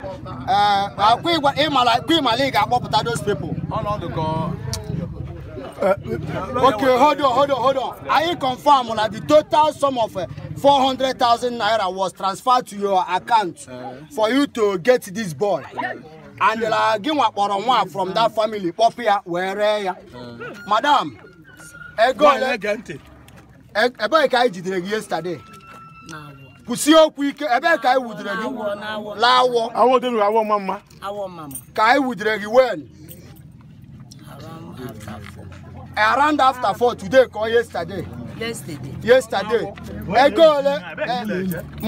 Uh, uh, akpọpụta those people. Okay, hold on, hold on, hold on. Anyị confirm na the total sum of 400,000 uh, naira was transferred to your account eh. for you to get this boy. And gị wakpọrọ nwa from that family kpọpụ where? wee ree eh. Madam, ego ole? E-, Ebee ka yesterday? kwụsị okwu ike ebe ka anyị wudere gị laawọ awọ mma mma ka anyị wudere gị wen around after four today ka yesterday yesterday ego ole eh, mgbe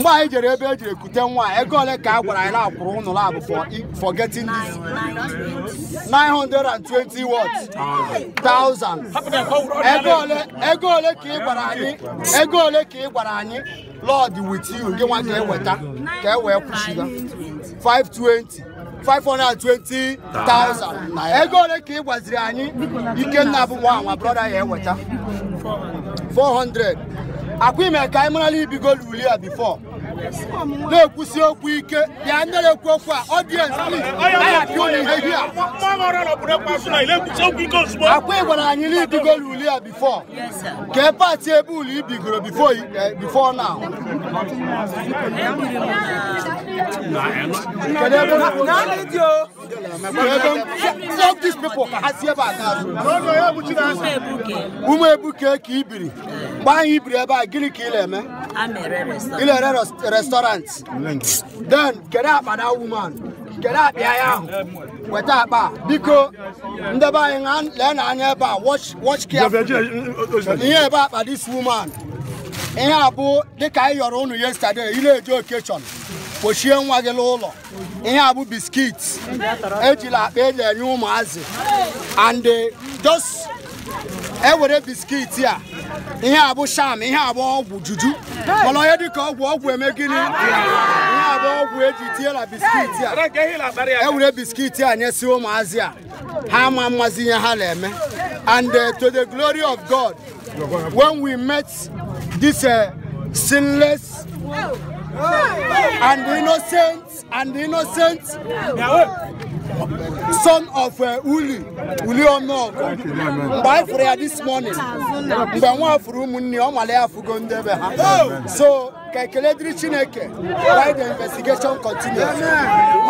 anyị jere ebe e jiri ekute nwa ego ole ka a gwara anyị na-akwụrụ ụnụ labụ for getting this 920 watts 1000 ego ole ka ị gwara anyị ego ole ka ị gwara anyị lord with you ndị nwa ka Five twenty. Five hundred kwụsịga 520 520 000 ego ole ka ị gwaziri anyị ikenna bụ nwa nwa brọda ya eweta hundred. akwa ime ka anyị marala ibigo luli ya before na-ekwusi okwu ike bịa nyere ekwu okwu a ọdiens akwa ị gwara anyị n'ibigo n'uli ya ka e pati ebe uli ibigoro bifo na ụmụ ebuke ka ibiri gbaa anyị ibiri ebe a gịnị ka ị na-eme ile ere restaurant then kedu akpa woman weta akpa ah. biko ndeba anyị lee na anya ebe a watch ihe ebe akpa this woman ihe a dịka yọrọ unu yesterday ị na-eje kpochie nwa gị n'ụlọ ihe a biskit ejila akpa eji enye ụmụazị and eh, just ewere biskiti a ihe a bụ sham ihe a bụ ọgwụ juju mana onye dịka ọgwụ ọgwụ eme gịnị ihe a bụ ọgwụ eji tiela biskiti a ewere biskiti a nyesi ụmụazị a ha ma mmazi ihe ha na-eme and uh, to the glory of God when we met this uh, sinless and innocent and innocent son of uh, Uli, Uli Ono. By prayer this morning, we want afụrụ ụmụnne ọ nwale ya afụgo ndebe ha. So, ka ekele dịrị Chineke, by the investigation continues.